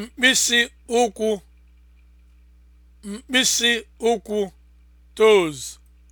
mkpịsị ụkwụ mkpịsị ụkwụ